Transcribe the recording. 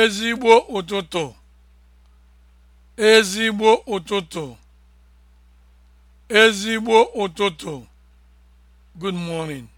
ezigbo ụtụtụ ezigbo ụtụtụ ezigbo ụtụtụ good morning